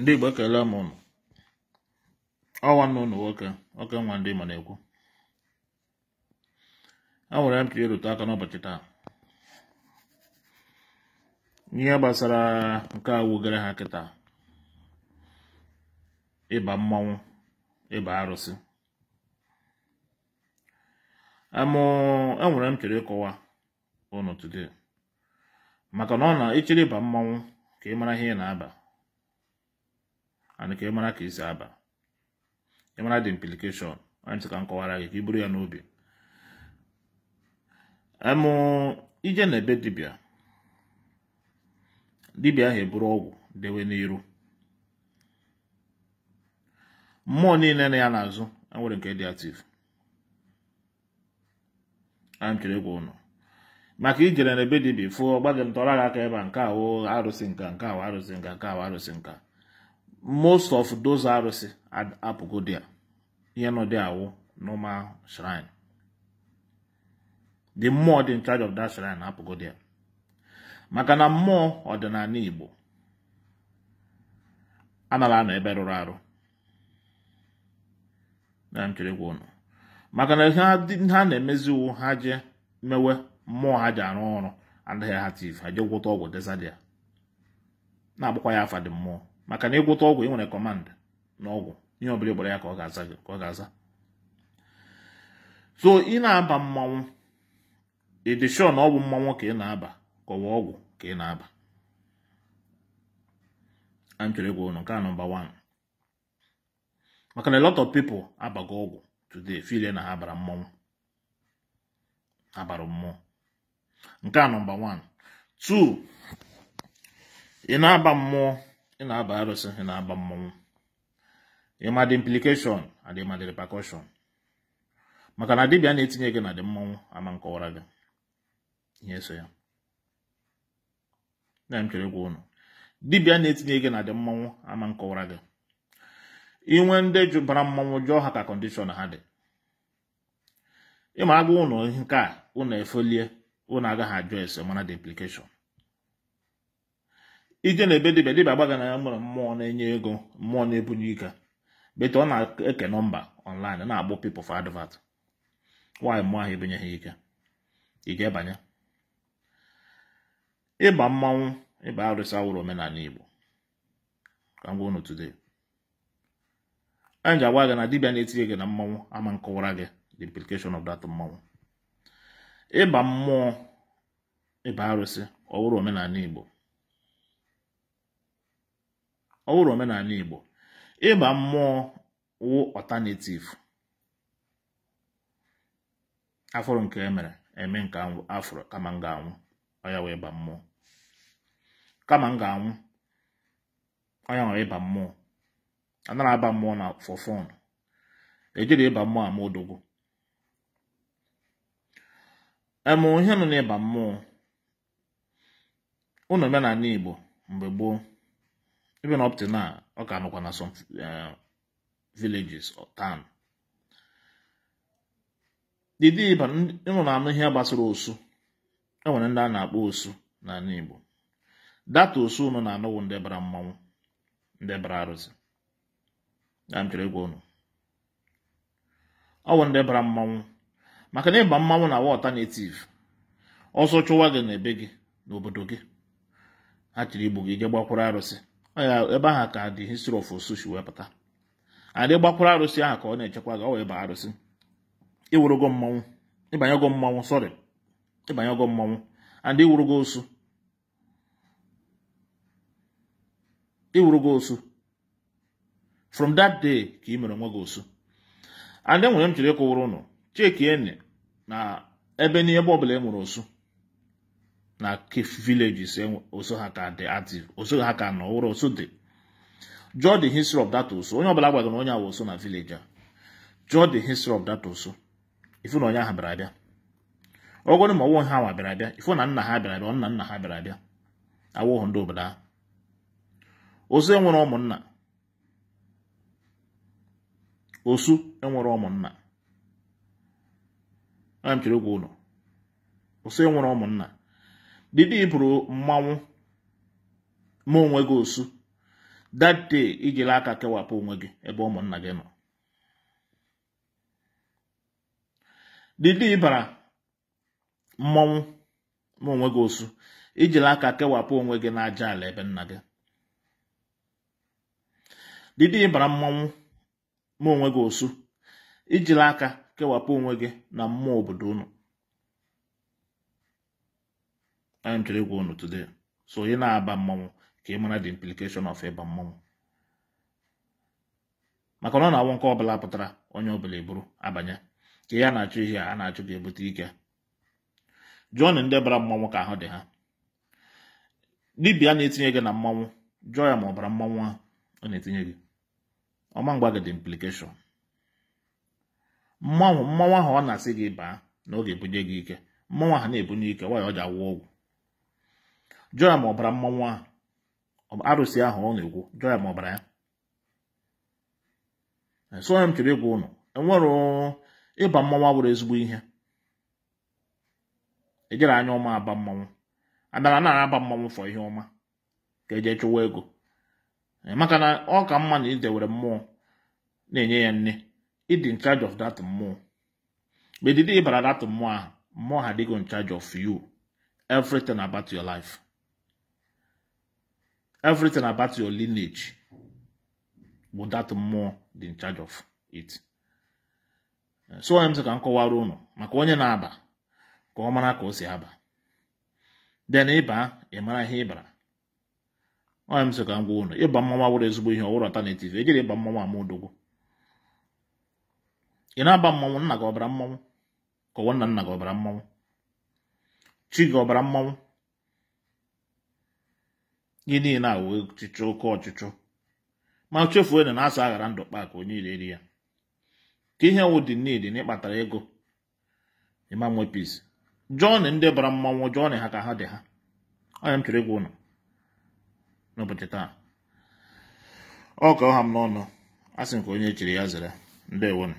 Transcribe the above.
ndị Igbo ekele m ụnụ ọnwa nna ụnụ nwoke oke nwa ndị Igbo na-ekwu enwere m ka ịrụte aka n'ụbọchị taa ihe gbasara nke a gara ha kịta ịba mmanwụ ịba arụsị amụ enwere m chere ịkọwa ụnụ today maka na ọ na ịchịrị ịba mmanwụ ka ị mara ihe ị na-aba and ka ịmara ka isi aba ịmara the implication anyị ka m gị ka i buru ya n'obi emụ ije na ebe dibịa dibịa ahụ eburu ọgwụ dewe n'iru mmụọ niile na ya n'azụ enwere nke dị ativ anyị chere egwu ụnụ maka ijere na ebe dibịa fụ ọgba gị ntọrọ gị aka ebe a nke awụ arụsị nka nke awụ arụsị nka nke awụ arụsị nka most of those arụsị apụgo there ihe nọ dị awụ normal shrine the more dị in charge of that shrine apụgo there maka na mmụọ ọdịnala Igbo anara anọ ebe rụrụ arụ na m chere gwa ụnụ maka na ha na-emezi iwu ha je mewe mmụọ ha ji arụ ọrụ anaghị ha tiv ha je gwụta ọgwụ dezadịa na-agbakwa ya afa dị mmụọ maka na ịgwụta ọgwụ ị nwere kọmand na ọgwụ ihe ọbụla ịgbara ya ka ọ ga-aza ka ọ ga-aza so ị na-aba mmanwụ ịdị shọ na ọgwụ mmanwụ ka ị na-aba kọwa ọgwụ ka ị na-aba a chọrọ ịgwa ụnụ nke a nọmba 1 maka na lot of people abago ọgwụ today file na ha bara mmanwụ ha mmụọ nke a nọmba 1 2 ị na-aba mmụọ ị na-aba arụsị ị na-aba mmọnwụ ịma dị implication adị ịma dị repercussion maka na dibịa na-etinye gị na dị mmọnwụ ama nkọwara gị ihe so ya na m chere gwa ụnụ dibịa na-etinye gị na dị mmọnwụ ama nkọwara gị inwe ndị jụbara mmọnwụ jụọ ha ka kọndishọn ha dị ịma agwa ụnụ nke a efolie ụnụ agaghị ajụ ese mana dị implikeshọn ije na ebe dibia dibia gbaga na ya nwere mmụọ na-enye ego mmụọ na-ebunye ike bete ọ na-eke nọmba ọnlaịn na-agbụ people for advert nwaanyị mmụọ ahụ ebunye ha ike ị ga-ebanye ịba mmanwụ ịba arụsị awụrụ omenala Igbo ka m gwa unu today anyị ji agwa gị na dibịa na-etinye gị na mmanwụ ama nkọwara gị the implication of that mmanwụ ịba mmụọ ịba arụsị ọwụrụ omenala Igbo ọ bụrụ omenala Igbo ịba mmụọ wụ ọtanetiv afọrọ nke emere eme nke anwụ afọrọ kama m ga-anwụ ọya wee ịba mmụọ kama m ga-anwụ ọya nwere ịba mmụọ anara aba mmụọ na fọfọn ejiri ịba mmụọ ama odogwu Emụ ihe nọ n'ịba mmụọ ụnụ omenala Igbo mgbe gboo even up to now ọ ka nọkwa na some eh, villages or town ịnọ na anụ ihe gbasara osu enwere ndị a na-akpọ osu n'ala Igbo data osu ụnụ na-anọwụ ndị bara mmanwụ ndị bara arụsị ya m chọrọ ịgwa ụnụ ọwụ ndị bara mmanwụ maka na ịba mmanwụ na alternative ọsọ chụwa gị na ebe gị n'obodo gị ha chịrị igbu gị je gbakwuru arụsị ya ebe ahụ ka dị history of osushi wee pụta adị gbakwara arụsị ahụ ka ọ na-echekwa gị ọ wee ba arụsị iwurugo mmanwụ ịbanyego mmanwụ sọrị ịbanyego mmanwụ and iwurugo osu iwurugo osu from that day ka ị mere onwe gị osu and enwere m chọrọ ịkụwụrụ ụnụ chekieni na ebe n'ebe ọ bụla e nwere osu na villages oso ha ka dị active oso ha ka nọ ụrọ oso dị jụọ the history of that oso onye ọbụla gwagara onye awa oso na village a jụọ the history of that oso ifu na onye ahụ bịara abịa ọgwọrọ ma ọwụghị ha nwa bịara abịa ifu na nna ha bịara abịa nna nna ha bịara abịa awụghị ndị obodo ahụ osu enwere ụmụnna osu enwere ụmụnna ana m chere okwu ụlọ osu enwere ụmụnna Dịdị bụrụ mmanwụ ma onwe gị osu that day ijila aka kewapụ onwe gị ebe ụmụnna gị nọ Dịdị ịbara mmanwụ ma onwe gị osu ijiri aka kewapụ onwe gị n'aja ala ebe nna gị Dịdị ịbara mmanwụ ma onwe gị osu ijiri aka kewapụ onwe gị na mmụọ obodo unu I'm to go on today. So you know about mom came on the implication of a mom. maka na ọ na-awụ ọbụla pụtara onye bụla eburu abanye ka ya na achọ ihe a na-achụ ga-ebute ike jụọ na ndị bara mmanwụ ka ahụ dị ha dibịa na-etinye gị na mmanwụ jụọ ma ọbara mmanwụ ahụ ọ na-etinye gị ọma mgba gị dị implikeshọn mmanwụ ahụ ọ na-asị gị baa na oge ebunye gị ike mmanwụ ahụ na-ebunye ike nwaanyị ọ ji awụ ọgwụ ọ bara mmanwụ ahụ arụsị ahụ ọ na ma ọ bara ya e, soya m chere ịgwa ụnụ enwere ịba mmanwụ abụrụ ezigbo ihe ejere anya ọma aba mmanwụ adara na aba mmanwụ fọ ihe ọma ka eje chụwa ego e, maka na ọ ka mma na idewere mmụọ na-enye ya nne ịdị in charge of that mmụọ ma edide ịbara that mmụọ ahụ mmụọ ha dịgo in charge of you everything about your life everything about your lineage bụ that mmụọ dị in charge of it so onye m sị ka maka onye na-aba ka ọ mara ka o si aba then ịba ị mara ihe ịbara onye m sị ka m gwa ụnụ ịba mmanwụ wụrụ ezigbo ihe ọwụrụ alternative ejiri ịba mmanwụ ama odogwu ị na-aba mmanwụ nna gị ọbara mmanwụ ka ọwa nna nna gị ọbara mmanwụ chi gị ọbara mmanwụ gị niile a wee ọchịchọ oke ọchịchọ ma chefuo na na aghara ndụ kpa onye onye ireri ya ka ihe nwụ dị nidi na ịkpatara ego imam wepis jọn ndị bara mmanwụ jọn ha ka ha dị ha anya m chọrọ ịgwa ụnọ n'ụbọchị taa ọ ka ọha m n'ọnụ a sị m ka onye chiri ya zere ndewonụ